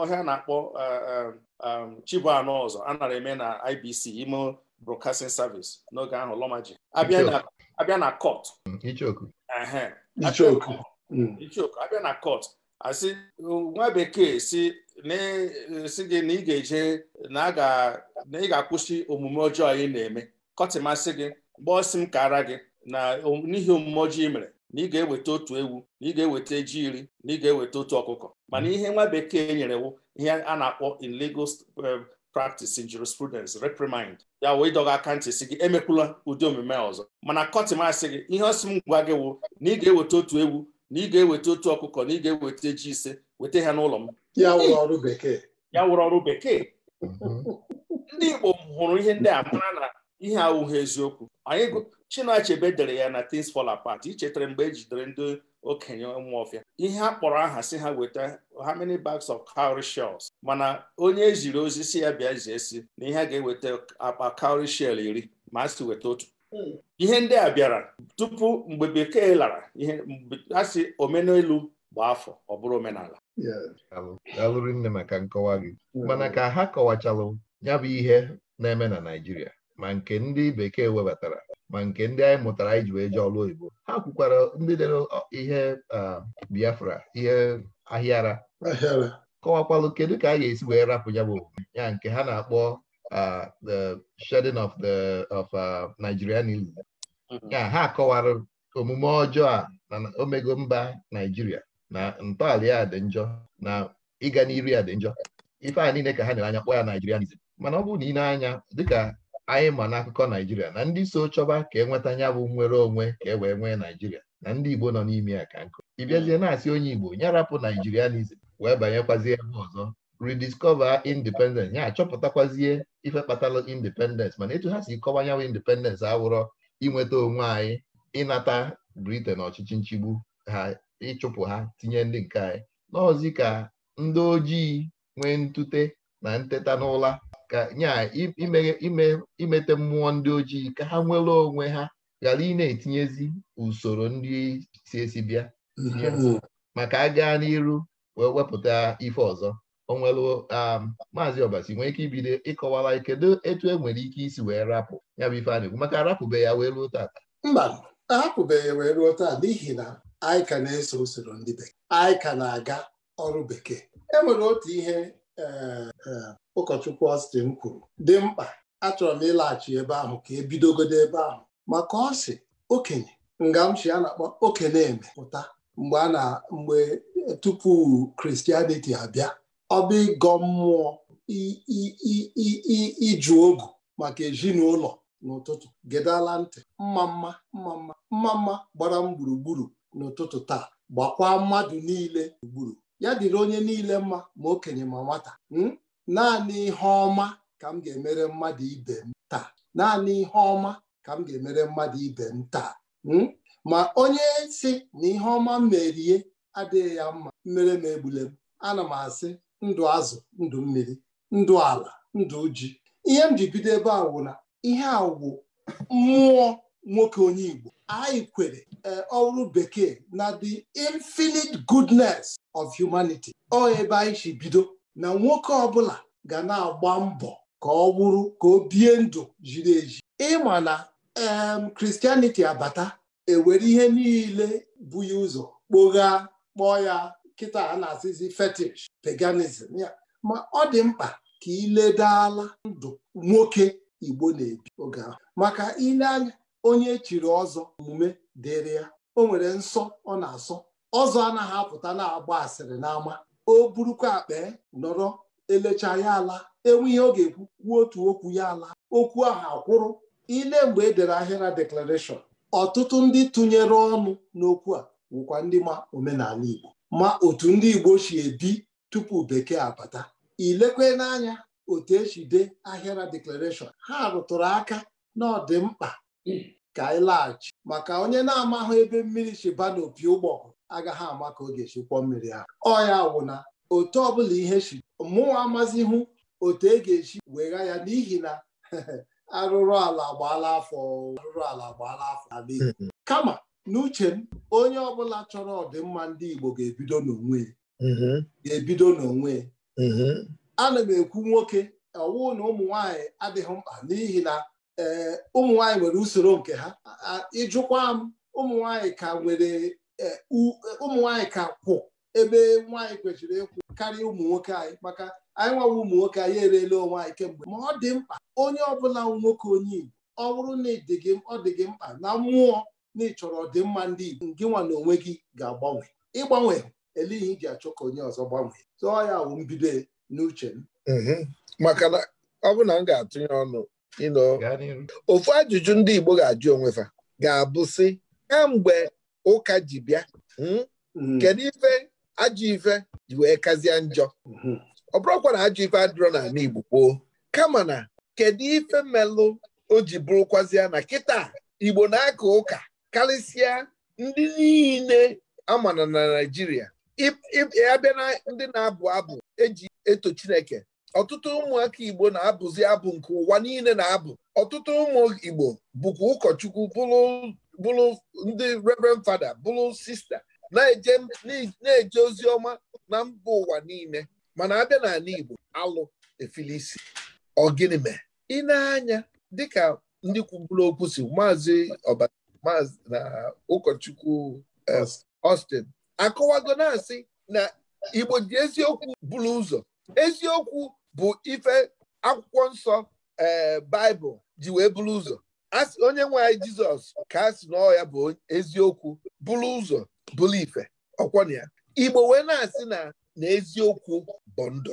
ọhịa na-akpọ uh, um, um, Chibuano ọzọ a nara eme na IBC ime Broadcasting Service n'oge ahụ Lomaji abịa na court ichoku abịa na court asị nwa bekee si na-esi eh, gị na ị ga-eje na ị ga-akwụsị omume ọjọọ ị na-eme kọtịmasị gị mgbe ọsị m ka gị na n'ihi omume ọjọọ ị mere na ị ga-eweta otu ewu na ị ga-eweta ji iri na ị ga-eweta otu ọkụkọ mana ihe nwa bekee nyere wụ ihe a na-akpọ in legal eh, practice in jurisprudence reprimand ya wee dọga aka ntị si gị emekwula ụdị omume ọzọ mana kọtịmasị gị ihe ọsị m gwa gị wụ na ị ga-eweta otu ewu na ị ga-eweta otu ọkụkọ na ị ga-eweta ji ise weta ha n'ụlọ m ya wụrụ ọrụ bekee mhm. ndị Igbo hụrụ ihe ndị a mara na ihe awụghị eziokwu anyị Chinua-Achebe dere ya na tins Fall Apart ichetara mgbe e jidere ndị okenye ụmụọfịa ihe a kpọrọ aha si ha weta how many bags of cowry shells mana onye eziri ozi si ya bịa zie si na ihe a ga-eweta akpa cowry shell iri ma a si weta otu hmm. ihe ndị a bịara tupu mgbe bekee lara ihe asị omenelu gbaa afọ ọ bụrụ omenala alụrụ nne maka nkọwa gị mana ka ha kọwachalụ ya bụ ihe na-eme na Naịjirịa ma nke ndị bekee webatara ma nke ndị anyị mụtara anyị ji wee jee ọlụ oyibo ha kwukwara ndị dere ihe Biafra ihe ahịara kọwakwalụ kedu ka a ga-esi wee rapụ ya bụ ya nke ha na-akpọ the shedding of the of Nigerianism mm-hmm. ya ha kọwara omume ọjọọ a na omego mba Naijiria na ntọala ya dị njọ na ịga n'iru ya dị njọ ife a niile ka ha nyere anya kpọọ ya naijirianizm mana ọ bụrụ na ị anya dịka anyị ma n'akụkọ naijiria na ndị so chọba ka enweta ya bụ nnwere onwe ka e wee nwee naijiria na ndị igbo nọ n'ime ya ka nkụ ị na-asị onye igbo nyarapụ rapụ naijirianizm wee banyekwazie ebe ọzọ rediscover independence ya achọpụtakwazie ife kpatara independence mana etu ha si kọwa independence awụrọ inweta onwe anyị ịnata Britain ọchịchị nchigbu ha ịchụpụ ha tinye ndị nke anyị n'ọzi ka ndị ojii nwee ntute na nteta n'ụla ka nya imete mmụọ ndị ojii ka ha nwere onwe ha ghara ị na-etinyezi usoro ndị si esi bịa maka a gaa n'iru wee wepụta ife ọzọ onwere um, maazị ọbasi nwee ike ibido ịkọwara kedu etu e nwere ike isi wee rapụ ya bụ ife a na-ekwu maka arapụbe ya wee ruo taa mba ahapụbeghị wee ruo taa n'ihi na anyị ka na-eso usoro ndị bekee anyị ka na-aga ọrụ bekee e nwere otu ihe eh, eh, ụkọchukwu Austin kwuru dị mkpa achọrọ m ịlaghachi ebe ahụ ka ebidogodo ebe ahụ maka ọ sị okenye ngamchi a na-akpọ okenye eme pụta mgbe a na mgbe tupu kristianiti abịa ọ bụ ịgọ mmụọ iju ogu maka ezinụlọ n'ụtụtụ gedala ntị mma mma mma mma mma mma gbara m gburugburu n'ụtụtụ taa gbakwa mmadụ niile gburu ya dịrị onye niile mma ma okenye ma nwata hmm? naanị ihe ọma ka m ga-emere mmadụ ibe m taa naanị ihe ọma ka m ga-emere mmadụ ibe m taa hmm? ma onye si na ihe ọma m merie adịghị ya mma mmere m egbule m ana m asị ndụ azụ ndụ mmiri ndụ ala ndụ ji ihe m ji bido ebe a wụ na ihe a wụ mmụọ nwoke onye Igbo anyị kwere eh, ọrụ bekee na the infinite goodness of humanity ọ ebe anyị si bido na nwoke ọbụla ga na-agba mbọ ka ọ bụrụ ka o bie ndụ jiri eji ịma na Christianity abata ewere ihe niile bụ ya ụzọ kpogha kpọọ ya kịta a na-asịzi fetish paganism ya ma ọ dị mkpa ka iledala ndụ nwoke Igbo na-ebi oge ahụ maka ile anya onye echiri ọzọ omume dịrị ya o nwere nsọ ọ na-asọ ọzọ anaghị apụta na-agba asịrị n'ama o burukwa akpa nọrọ elecha ya ala enweghị ọ ga-ekwu kwuo otu okwu ya ala okwu ahụ akwụrụ ile mgbe e dere ahịra deklarashọn ọtụtụ ndị tụnyere ọnụ n'okwu a wụkwa ndị ma omenala Igbo ma otu ndị Igbo si ebi tupu bekee abata ilekwe n'anya otu esi dee ahịara deklarashọn ha rụtụrụ aka na ọdịmkpa mkpa ka anyị laghachi maka onye na-amaghị ebe mmiri na n'opi ụgbọgụ agaghị ama ka ọ ga-esi kwọ mmiri ahụ ọya wụna otu ọbụla ihe shi mụnwa amazighị otu e ga-esi wegha ya n'ihi na arụrụ ala gbaala afọ arụrụ ala gbaala afọ ala hmm. kama n'uche m onye ọbụla chọrọ ọdịmma ndị Igbo ga-ebido n'onwe mm-hmm. ga-ebido n'onwe mm-hmm. ana m ekwu nwoke ọwụ na ụmụ nwaanyị adịghị mkpa n'ihi na ee ụmụ nwanyị nwere usoro nke ha ịjụkwa m ụmụ nwanyị ka nwere e, e, ụmụ nwanyị ka kwụ ebe nwaanyị kwesịrị ịkwụ karịa ụmụ nwoke anyị maka anyị nwawa ụmụ nwoke anyị ereela onwe anyị kemgbe ma ọ dị mkpa onye ọbụla nwoke onye Igbo ọ bụrụ na ọ dị gị mkpa na mmụọ na ịchọrọ ọdịmma ndị Igbo gị nwa na onwe gị ga-agbanwe ịgbanwe eleghị iji achọ ka onye ọzọ gbanwee tụọ ya wụ mbido n'uche m mm-hmm. maka na ọ bụ na m ga-atụnye ọnụ ofu ajụjụ ndị Igbo ga-ajụ onwefa ga-abụ sị kamgbe ụka ji bịa hmm, hmm. kedu ife ajụ ife ji wee kazie njọ hmm. ọ bụrụkwa na ajụ ife adịrọ n'ala Igbo gboo kama na kedu ife melụ o ji bụrụkwazịa na kịta Igbo na-aka ụka karịsịa ndị niile amana na Naijiria abịa na ndị na-abụ abụ eji eto Chineke ọtụtụ ụmụaka igbo na-abụzi abụ nke ụwa niile na-abụ ọtụtụ ụmụ igbo bụkwa ụkọchukwu bụrụ ndị reverend fada bụrụ sista na-eje ozi ọma na mba ụwa niile mana abịa n'ala igbo alụ efilisi ọgịnị mee ị na-anya dịka ndị kwuburu okwu si maazị na ụkọchukwu ostin eh, akọwago na-asị na igbo ji eziokwu bụrụ ụzọ eziokwu bụ ife akwụkwọ nsọ ee eh, baịbụl ji wee bụrụ ụzọ asị onye nwe anyị jizọs ka a sị na ya bụ eziokwu bụrụ ụzọ bụrụ ife ọkwọna ya igbo wee na-asị na na eziokwu bụ ndụ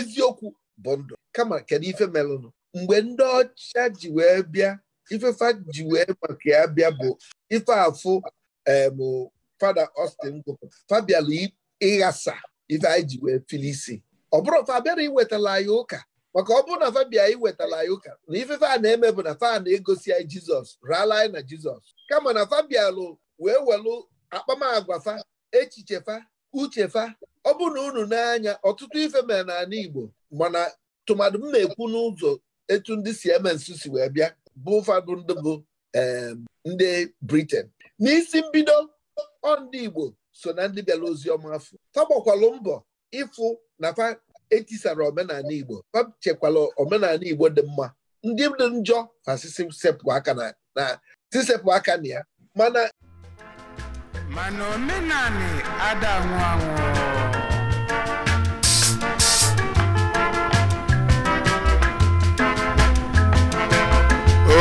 eziokwu bụ ndụ kama kedu ife melụnụ mgbe ndị ọcha ji wee bịa ifefa ji wee maka ya bịa bụ ife afụ em eh, fada Austin gwụpụ fabialụ ịghasa ife anyị ji wee filisi ọ bụrụ fa iwetala anyị ụka maka ọ bụrụ na fabia iwetala anyị ụka na ife a na-eme bụ na fa na-egosi anyị jizọs raala anyị na jizọs kama na fa bịalụ wee welụ akpamagwa fa echiche fa uche fa ọ bụ na unu n'anya ọtụtụ ife mere n'ala igbo mana tụmadụ m na-ekwu n'ụzọ etu ndị si eme nsu si wee bịa bụ ụfọdụ ndị bụ ndị briten n'isi mbido ọ ndị igbo so na ndị bịara ozi ọma afọ fa gbakwalụ mbọ ịfụ na fa etisara omenala Igbo chekwala omenala Igbo dị mma ndị dị njọ na sisepụ aka na ya mana mana omenala ada anwụ anwụ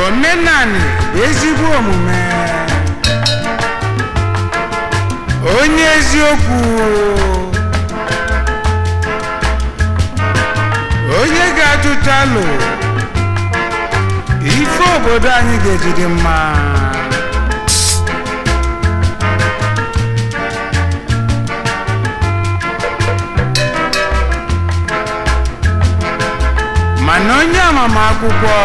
omenani ezigbo omume onye eziokwu onye ga-ajụchalụ ife obodo anyị ga-eji dị mma mana onye akwụkwọ.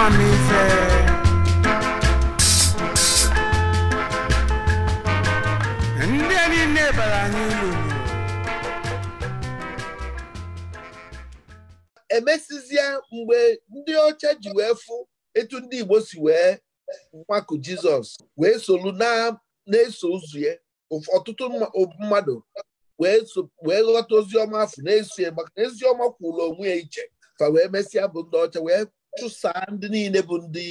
ndị anyị emesizie mgbe ndị ọcha ji wee fụ etu ndị Igbo si wee nwakụ Jizọs wee solu na-eso ụzụ ya ọtụtụ mmadụ wee ghọta oziọma afọ na-eso maka na eziọma kwụrụ onwe ya iche fa wee mesịa bụ ndị ọcha wee chụsaa ndị niile bụ ndị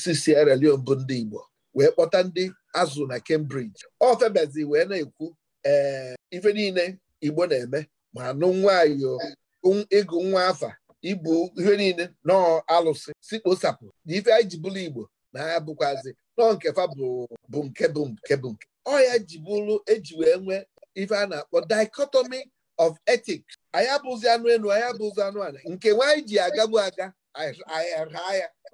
si Sierra Leone bụ ndị Igbo wee kpọta ndị azụ na Cambridge ọ ofebazi wee na-ekwu ee ife niile Igbo na-eme ma anụ nwayọ ịgụ nwa afa ibu ihe niile nọọ alụsị si kposapụ na ife anyị ji bụrụ Igbo na ha bụkwazi nọọ nke fa bụ nke bụ nke bụ nke ọ ya ji bụrụ eji wee nwee ife a na-akpọ dichotomy of ethics anyị abụzi anụ elu anyị abụzi anụ ala nke nwaanyị ji agagbu aga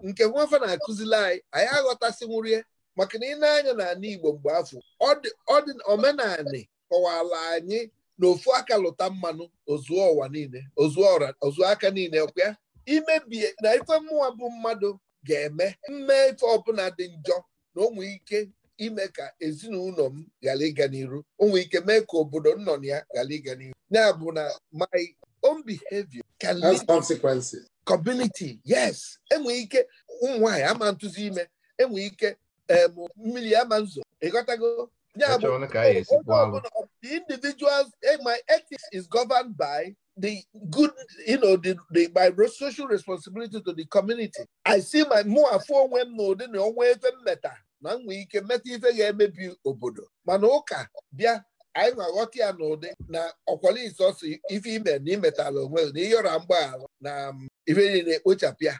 nke nwafe na-akụzili anyị anyị aghọtasịnwuru ya maka na ị na-anya n'ala Igbo mgbe afọ omenani kọwala anyị na ofu aka lụta mmanụ ozuo ụwa niile ozuo aka niile ọkwa imebie na ife mmụọ bụ mmadụ ga-eme mme ife ọbụla dị njọ na ụmụ ike ime ka ezinụlọ m ghara ịga n'iru ụmụ ike mee ka obodo nnọ ya ghara ịga n'iru ya bụ na my own behavior can lead consequences community yes enwere ike ụmụ ama ntụzi ime enwere ike mmiri ama nzo ịghọtago ya bụ the individuals eh, my ethics is governed by the good, you know, the, the, my social responsibility to the community. I see my mụ afọ onwe m n'ụdị na onwe efe mmeta na m nwee ike meta ife ga-emebi obodo mana ụka bịa anyị na-aghọta ya n'ụdị na ọkwalise ọsọ ife ime na imetala onwe na ọra mgbaghara na um, ife niile ekpochapụ ya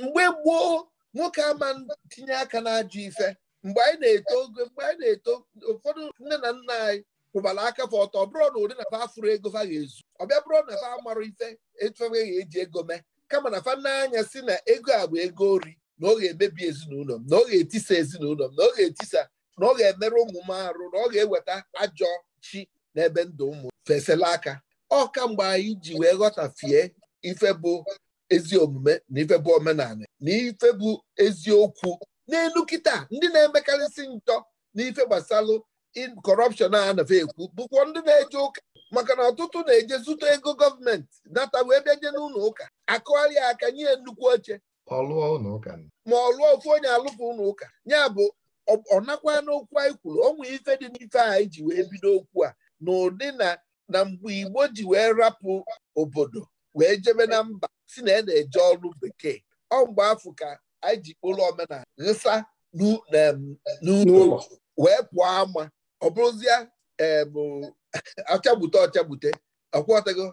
mgbe gboo nwoke ama tinye aka na n'ajọ ife mgbe anyị na-eto ogo mgbe anyị na-eto ụfọdụ nne na nna anyị kwụbara aka fa ọtọ bụrụ na ụdị na fa afụrụ ego fa ga-ezu ọbịa bụrụ na fa amarụ ife etufe eji e ego mee kama na fa n'anya si na ego a bụ ego ori na ọ ga-emebi ezinụlọ m na ọ ga-etisa ezinụlọ m na ọ ga-etisa na ọ ga-emerụ ụmụ m arụ na ọ ga-eweta ajọ chi n'ebe ndụ ụmụ fesela aka ọ kamgbe anyị ji wee ghọtafie ife bụ ezi omume na ife bụ omenala na ife bụ eziokwu n'elu kịta ndị na-emekarịsị ntọ na ife gbasalụ kọrọpshọn a anafe ekwu bụkwa ndị na-eje ụka maka na ọtụtụ na-eje zụta ego gọọmenti nata wee na n'ụlọ ụka akụgharịa aka nye nnukwu oche ma ọ lụọ ofu onye alụpụ ụlọ ụka ya bụ ọ nakwa n'okwu anyị kwuru onwe ife dị n'ife anyị e ji wee bido okwu a n'ụdị na na mgbe Igbo ji wee rapụ obodo wee jebe na mba si na ya e na-eje ọrụ bekee ọ mgbe afọ ka anyị ji kpụrụ omenala nsa n'ụlọ wee pụọ ama ọ bụrụzịa ọchagbute ọchagbute ọkwọtago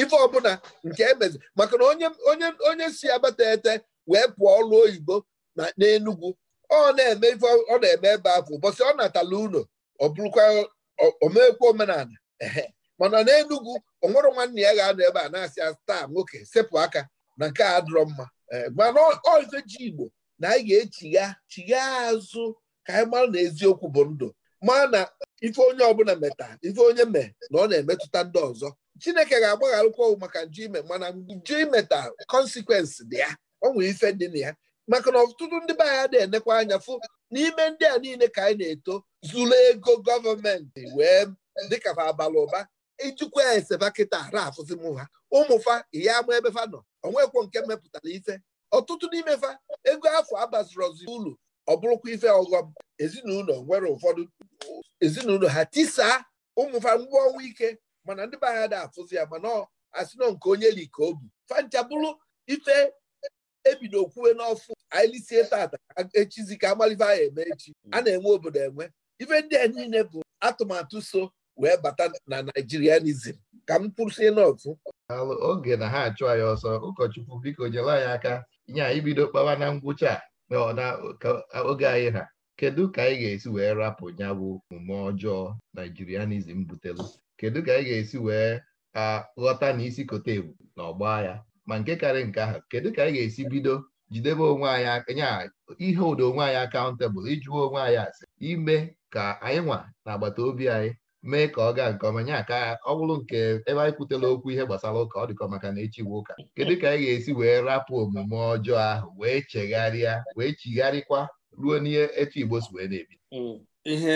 ife ọbụla nke emezi maka na onye si abata ete wee pụọ ọrụ oyibo na n'Enugwu ọ na-eme ife ọ na-eme ebe afọ ụbọchị ọ natala ụlọ ọ bụrụkwa omekwa omenala mana n'Enugu onwere nwanne ya ga-anọ ebe a na-asị taa nwoke sepụ aka na nke a dịrọ mma e, mana ọzọ ji Igbo na anyị ga-echigha chigha azụ ka anyị mara na eziokwu bụ ndụ mana na ife onye ọbụla meta ife onye me na ọ na-emetụta ndị ọzọ Chineke ga-agbagharịkwa maka nju ime mana nju imeta kọnsikwensị dị ya ọ nwere ife dị na ya maka na ọtụtụ ndị be anyị na-enekwa anya fụ n'ime ndị a niile ka anyị na-eto zuru ego gọọmenti wee dịka fa abalị ụba ijikwa eseba kịta ara afụzi m ha ụmụfa ya ama ebe fa nọ onwekwo nke mepụtara ife ọtụtụ n'ime fa ego afọ abaziri ozi ọ bụrụkwa ife ọghọm ezinụlọ nwere ụfọdụ ezinụlọ ha tisaa ụmụfa ngwa ọnwa ike mana ndị be anyị afụzi ya mana asị nọ nke onye li ka obu fancha bụrụ ife ebido kwuwe n'ọfụ anyị lisie tata echizi ka amalive anyị eme echi a na-enwe obodo enwe ife ndị a niile bụ atụmatụ so wee bata na naijirianizm ka m kwụsị n'otu oge na ha achụ anyị ọsọ ụkọchukwu biko nyere anyị aka nye anyị bido kpawa na ngwụcha a oge anyị ha kedu ka anyị ga-esi wee rapụ ya bụ omume ọjọọ naijirianizm butelu kedu ka anyị ga-esi wee ghọta na isi kote ebu na ọgba ya ma nke karị nke ahụ kedu ka anyị ga-esi bido jidebe onwe anyị nya ihe ụdị onwe anyị akaụntebụl ijụwa onwe anyị asị ime ka anyị nwa na agbata obi anyị mee ka ọ gaa nke ọma nya ka ọ bụrụ nke ebe anyị kwutela okwu ihe gbasara ụka ọ dịkọ maka na echiwe ụka kedu ka anyị ga-esi wee rapụ omume ọjọọ ahụ wee chegharịa wee chigharịkwa ruo n'ihe etu Igbo si wee na-ebi hmm, ihe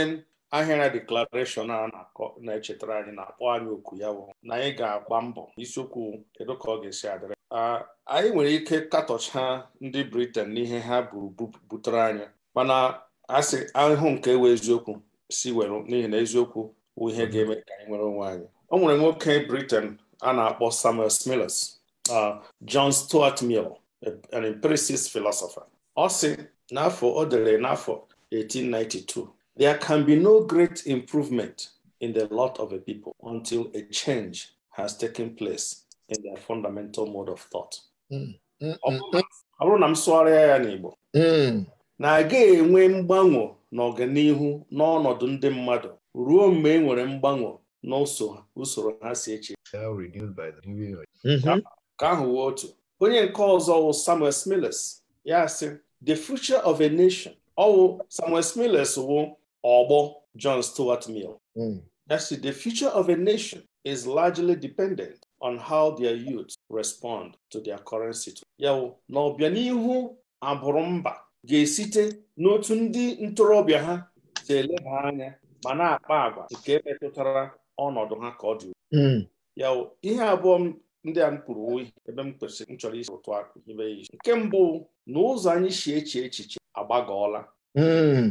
ahịara deklarashọn a na-echetara anyị na-akpọ anyị oku ya bụ na anyị ga-agba mbọ isiokwu kedu ka ọ ga-esi adịrị anyị nwere ike katọcha ndị briten n'ihe ha butere anya mana asị ahụhụ nke ewe eziokwu si were n'ihi na eziokwu bụ ihe mhm. ga-eme ka anyị nwere onwe anyị o nwere nwoke briten a na-akpọ samuel smiles john stuart mill an empiricist philosopher ọ sị n'afọ o dere n'afọ 1892 there can be no great improvement in the lot of a people until a change has taken place in their fundamental mode of thought mm. Mm, mm, ọ bụrụ na m sụgharịa ya n'Igbo na agaghị enwe mgbanwe n'ọganihu n'ọnọdụ ndị mmadụ ruo mgbe e nwere mgbanwe n'usoro ha si eche mm-hmm. ka ahụ wee otu onye nke ọzọ wụ Samuel Smiles ya the future of a nation ọwụ Samuel Smiles wụ ọgbọ John Stuart Mill ya the future of a nation is largely dependent on how their youth respond to their current situation. Ya na ọbịanihu abụrụ mba ga-esite n'otu ndị ntorobịa ha si eleba anya ma na-akpa agwa nke metụtara ọnọdụ ha ka ọ dị hmm. ya ihe abụọ ndị a m kpụrụ oyi ebe m kwesịrị m chọrọ isi ụtụ akụ ibe isi nke mbụ na ụzọ anyị si eche echiche agbagọọla hmm.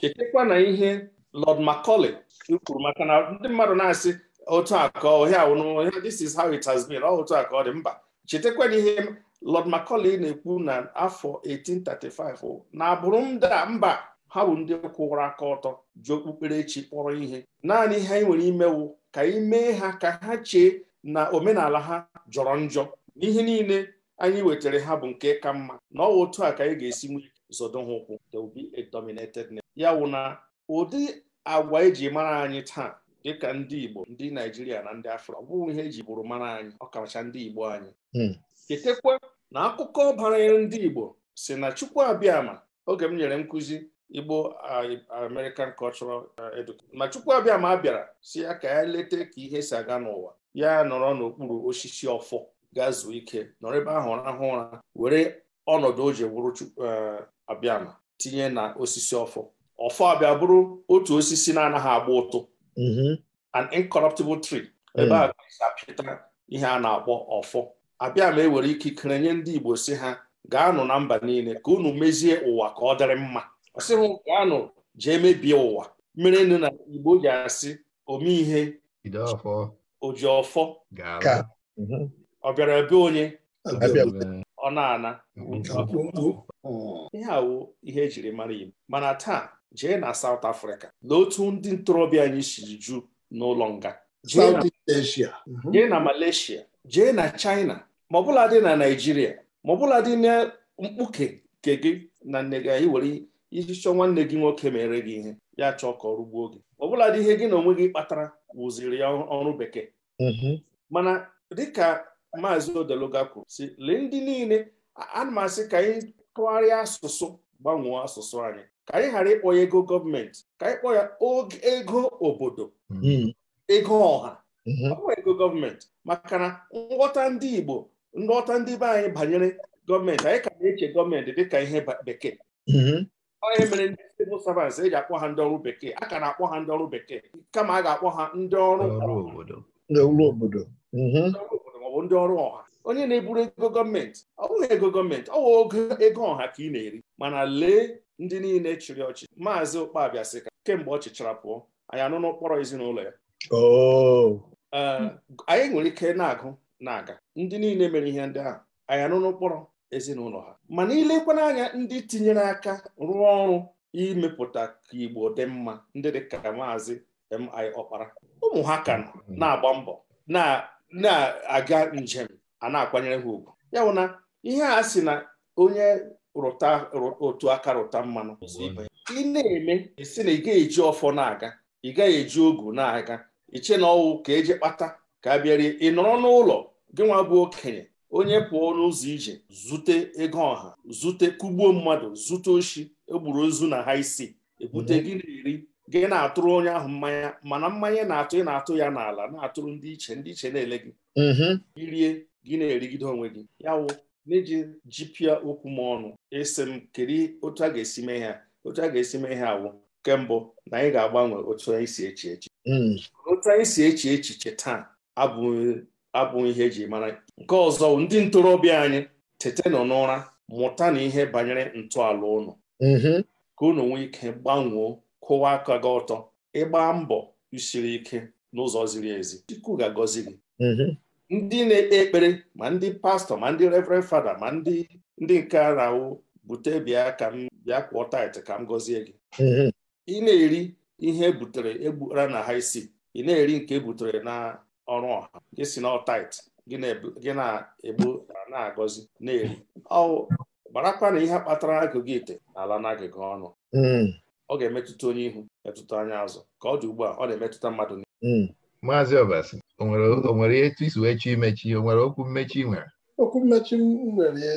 chetakwa na ihe Lọd Macaulay kwuru maka na ndị mmadụ na-asị otu a ka ọhịa this is how it has been ọ otu a ka ọ dị mba chetakwa na ihe lọd Macaulay na-ekwu na afọ 1835 na-abụrụ a mba ha bụ ndị kwụrụ aka ọtọ ji okpukperechi kpọrọ ihe naanị ihe anyị nwere imewu ka anyị e mee ha ka ha chee na omenala ha jọrọ njọ n'ihe niile anyị wetara ha bụ nke ka mma na ọwa otu a ka anyị ga-esi nwee zodo ha ụkwụ ya wụ na ụdị agwa eji mara anyị taa dịka ndị Igbo ndị Naijiria na ndị Afrịka ọ bụrụ ihe eji bụrụ mara anyị ọkacha ndị Igbo anyị chetakwa hmm. na akụkọ banyere ndị Igbo si na Chukwu Abịama oge m nyere nkụzi Igbo uh, American Cultural uh, Education na Chukwu Abịama bịara si ya ka ya leta ka ihe si aga n'ụwa ya nọrọ n'okpuru osisi ọfọ gaa zuo ike nọrọ ebe ahụ rahụ ụra were ọnọdụ o ji wụrụ uh, Abịama tinye na osisi ọfọ ọfọ abịa bụrụ otu osisi na-anaghị agba ụtụ Mm-hmm. an incorruptible tree mm. ebe a ga-apịta ihe a na-akpọ ọfọ abịa ma e were ikikere nye ndị Igbo si ha gaanụ na mba niile ka unu mezie ụwa ka ọ dịrị mma ọ gaanụ jee mebie ụwa mere nụ na Igbo ji asị ome ihe oji ọfọ mm-hmm. ọ bịara onye ọ na-ana ihe awụ ihe ejiri mara Igbo mana taa jee na South Africa na otu ndị ntorobịa anyị siri ju n'ụlọ nga mhm. jee na Malaysia jee na China ma ọbụla dị na Naịjirịa ma ọbụla dị na mkpuke nke gị na nne gị anyị were iji chọọ nwanne gị nwoke mere gị ihe ya chọọ ka ọrụ gbuo gị ọbụla dị ihe gị na onwe gị kpatara wụziri ya ọrụ bekee mhm. mana dịka maazị odeluga kwuru si lee ndị niile ana m asị ka anyị tụgharịa asụsụ gbanwee asụsụ anyị ka anyị ghara ịkpọ ya ego gọọmenti ka anyị kpọọ ya ego obodo hmm. ego ọha hmm. ego gọọmenti maka na nghọta ndị Igbo nghọta ndị be anyị banyere gọọmenti anyị ka na-eche gọọmenti dịka ihe bekee onye hmm. mere ndị civil servants eji akpọ ha ndị ọrụ bekee a ka na-akpọ ha ndị ọrụ bekee kama a ga-akpọ ha ndị ọrụ obodo maọbụ ndị ọrụ ọha onye na-eburu ego gọọmenti ọ bụghị ego gọọmenti ọ bụ ego ọha ka ị na-eri mana lee ndị niile chịrị ọchịchị maazị Ụkpabia sị ka kemgbe ọ chịchara pụọ anyị anụ n'ụkpọrọ ezinụlọ ya oh. anyị nwere ike na-agụ na-aga ndị niile mere ihe ndị ahụ anyị anụ n'ụkpọrọ ezinụlọ ha mana ilekwa n'anya ndị tinyere aka rụọ ọrụ imepụta ka Igbo dị mma ndị dị ka maazị M.I. Ọkpara ụmụ ha ka mm. na-agba mbọ na-aga njem a na-akwanyere ha ugwu ya na ihe a sị na onye rụta otu aka rụta mmanụ ị na-eme si na ị gaghị eji ọfọ na-aga ị gaghị eji ogu na-aga iche na ọwụ ka eji kpata ka a bịarie ị nọrọ n'ụlọ gị nwa bụ okenye onye pụọ n'ụzọ ije zute ego ọha zute kugbuo mmadụ zute oshi egburu ozu na ha isi ebute mhm. gị na-eri gị na-atụrụ onye ahụ mmanya mana mmanya na-atụ ị na-atụ ya n'ala na-atụrụ ndị iche ndị iche na-ele gị irie mhm. gị na-erigide onwe gị ya wụ n'iji jipịa okwu m ọnụ esi m kiri otu a ga-esi mee ha otu a ga-esi mee ha awụ nke mbụ na anyị ga-agbanwe otu anyị si echi echi hmm. otu anyị si echi echiche taa abụghị ihe eji mara nke ọzọ ndị ntorobịa anyị tete nọ n'ụra mụta na ihe banyere ntọala ụnụ mm-hmm. ka unu nwee ike gbanwoo kụwa aka gị ọtọ ịgba mbọ isiri ike n'ụzọ ziri ezi Chukwu ga-agọzi gị mm-hmm. ndị na-ekpe ekpere ma ndị pastọ ma ndị reverend fada ma ndị ndị nke a na-awụ bute bịa ka m bịa kwụọ tait ka m gọzie gị mm-hmm. ị na-eri ihe e butere egbura na ha isi ị na-eri nke e butere na ọrụ ọha gị si na tait gị na-egbu na-agọzi na-eri ọ gbarakwa na ihe kpatara agụgụ ite na ala n'agịga ọnụ mm-hmm. ọ ga-emetụta onye ihu metụta anya azụ ka ọ dị ugbu a ọ na-emetụta mmadụ niile mm-hmm. maazị ọbasi o nwere etu isi wee chọ imechi o nwere okwu mmechi nwere okwu mmechi nwere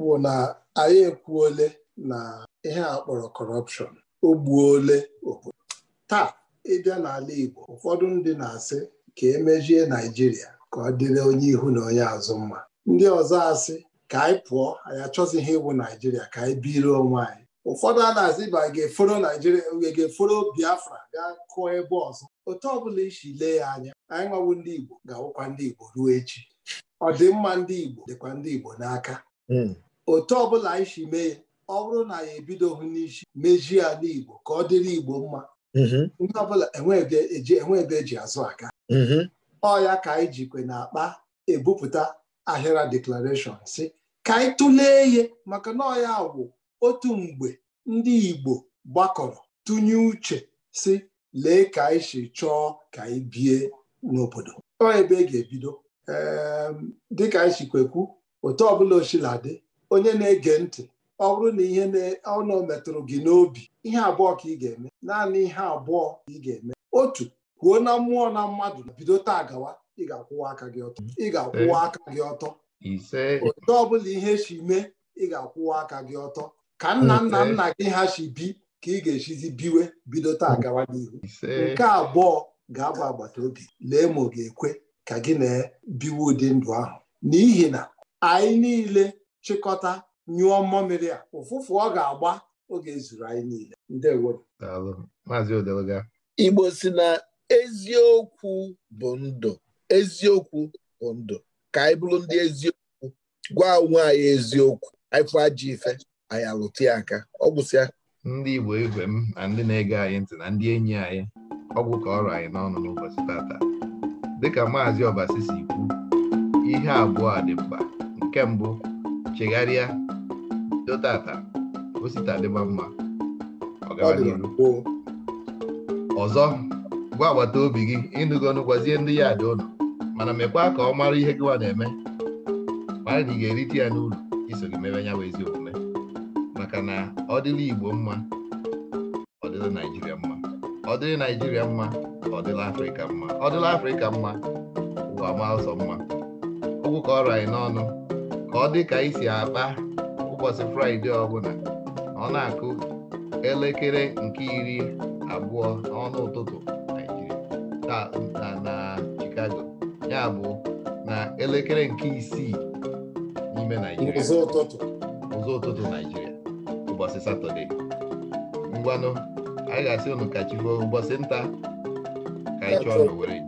bụ na anyị ekwuole na ihe a kpọrọ kọrọpshọn ogbuo ole obodo taa ịbịa n'ala Igbo ụfọdụ ndị na-asị ka emejie Naijiria ka ọ dịrị onye ihu na onye azụ mma ndị ọzọ asị ka anyị pụọ anyị achọzighị ịwụ Naijiria ka anyị biri onwe anyị ụfọdụ a na-azị ba ga-eforo naijiria ga-eforo biafra gaa kụọ ebe ọzọ otu ọbụla isi lee ya anya anyị nwawo ndị igbo ga-awụkwa ndị igbo ruo echi ọdịmma ndị igbo dịkwa ndị igbo n'aka hmm. otu ọbụla anyị si mee ọ bụrụ na ya ebidoghị n'isi mejie ya n'igbo ka ọ dịrị igbo mma hmm. ndị ọbụla enwe eji e e azụ aka hmm. ọ ya ka anyị jikwe na akpa ebupụta ahịra deklarashọn si ka anyị tụlee ihe maka na agwụ. otu mgbe ndị Igbo gbakọrọ tụnye uche si lee ka anyị si chọọ ka anyị bie n'obodo ọ ebe ị e ga-ebido ehm, dịka anyị sikwekwu otu ọbụla dị onye na-ege ntị ọ bụrụ na ihe ọnụ metụrụ gị n'obi ihe abụọ ka ị ga-eme naanị ihe abụọ ka ị ga-eme otu kwuo na mmụọ na mmadụ bido taa gawa ị ga-akwụwa aka gị ọtọ hmm. ị ga-akwụwa aka gị ọtọ otu ọbụla ihe si mee ị ga-akwụwa aka gị ọtọ ka nna nna nna gị ha si bi ka ị ga-esizi biwe bido taa gawa n'ihu nke abụọ ga-abụ agbata obi lee ma ọ ga-ekwe ka gị na-ebiwe ụdị ndụ ahụ n'ihi na anyị niile chịkọta nyụọ mmamịrị a ụfụfụ ọ ga-agba oge ezuru anyị niile igbo si na eziokwu bụ ndụ eziokwu bụ ndụ ka anyị bụrụ ndị eziokwu gwa onwe anyị eziokwu anyị ajọ ife anyị alụta ya aka ọ gbụsịa ndị Igbo igwe m na ndị na-ege anyị ntị na ndị enyi anyị ọgwụ ka ọrụ anyị n'ọnụ n'ụbọchị tata dịka maazị Obasi si kwu ihe abụọ a dị mkpa nke mbụ chegharịa dotata osita dịba mma ọzọ gwa agbata obi gị ịnụgo gwazie ndị ya dị ụlọ mana mekwa ka ọ mara ihe gịwa na-eme mara na ị ga-erite ya n'ụlọ iso gị mewe ya bụ eziokwu maka na ọ dịla Igbo mma ọ dịla Naịjirịa mma ọ dịla Naịjirịa mma ọ dịla Afrịka mma ọ dịla Afrịka mma ụwa ma ụzọ mma okwu ka ọ rọ n'ọnụ ka ọ dị ka anyị si akpa ụbọchị Fraịde ọbụla ọ na-akụ elekere nke iri abụọ n'ọnụ ụtụtụ Naijiria na Chicago ya bụ na elekere nke isii n'ime Naijiria ụzọ ụtụtụ Naijiria satọde ngwanụ anyị ga-asị unu ka chi ruo ụbọchị nta ka anyị chọọ nowere